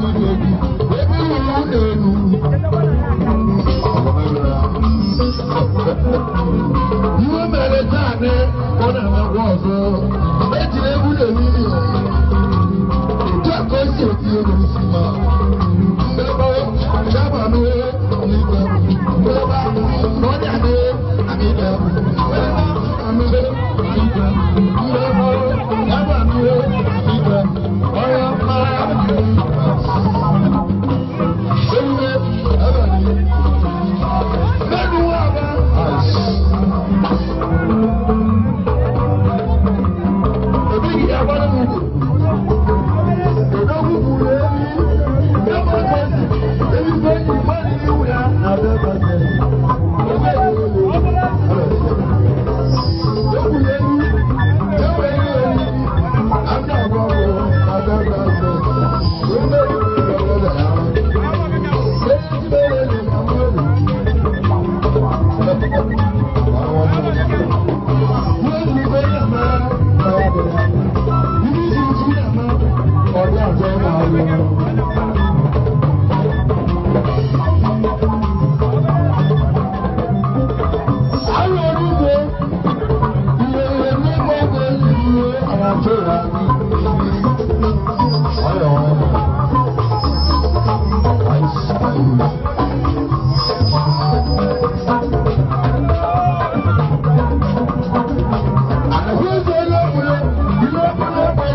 Hallelujah.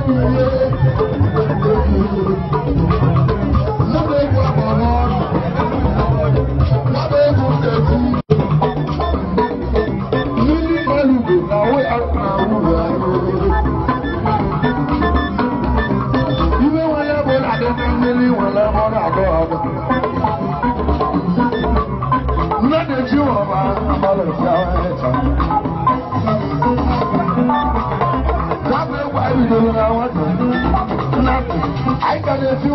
Thank you. ni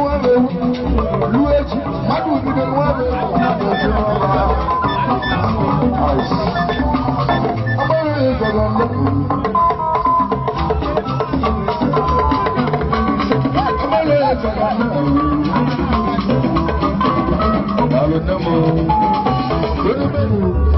Thank you.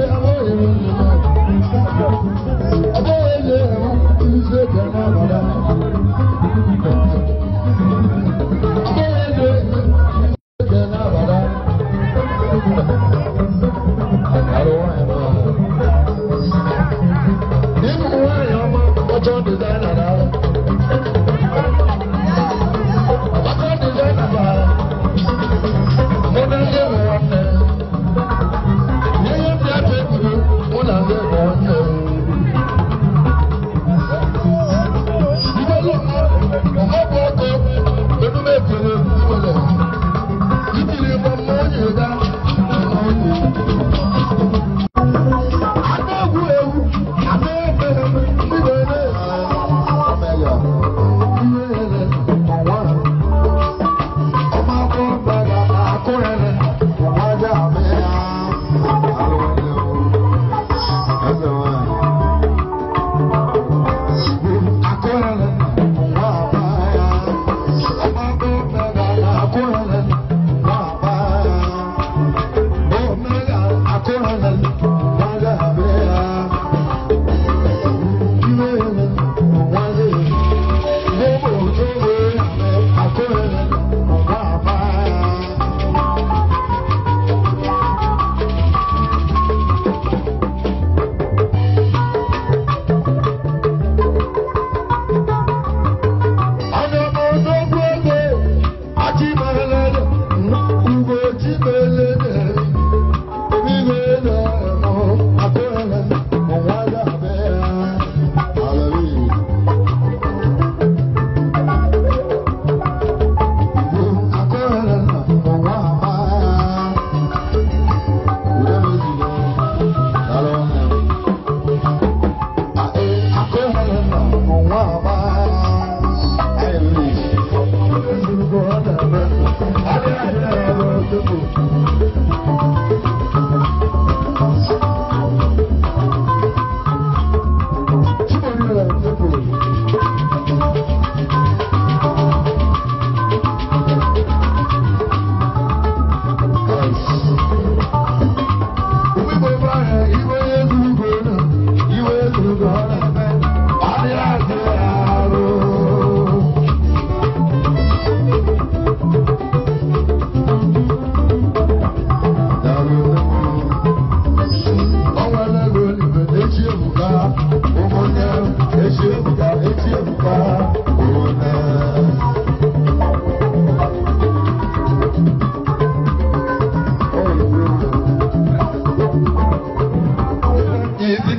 Vamos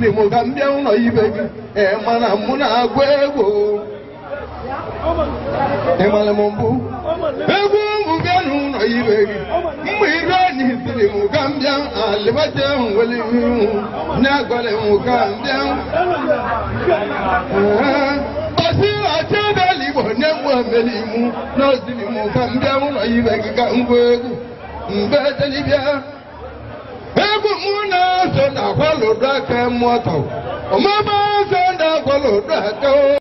dị mụ gaa ndị ụlọ ibe gị ma na mụ na-agụ egwu ịmara m mbụ egwu ụmụ bịa n'ụlọ ibe gị mgbe ire enyi siri mụ ka m alịbata ahụ ihu na-agwara m ka m bịa ọsị ọchị iwu mụ ka ụlọ ibe gị ka ngwa egwu mbe telibịa egwu mụ na eze na-agwalụdụ aka mmụọ tọwụ omume eze na-agwalụdụ aka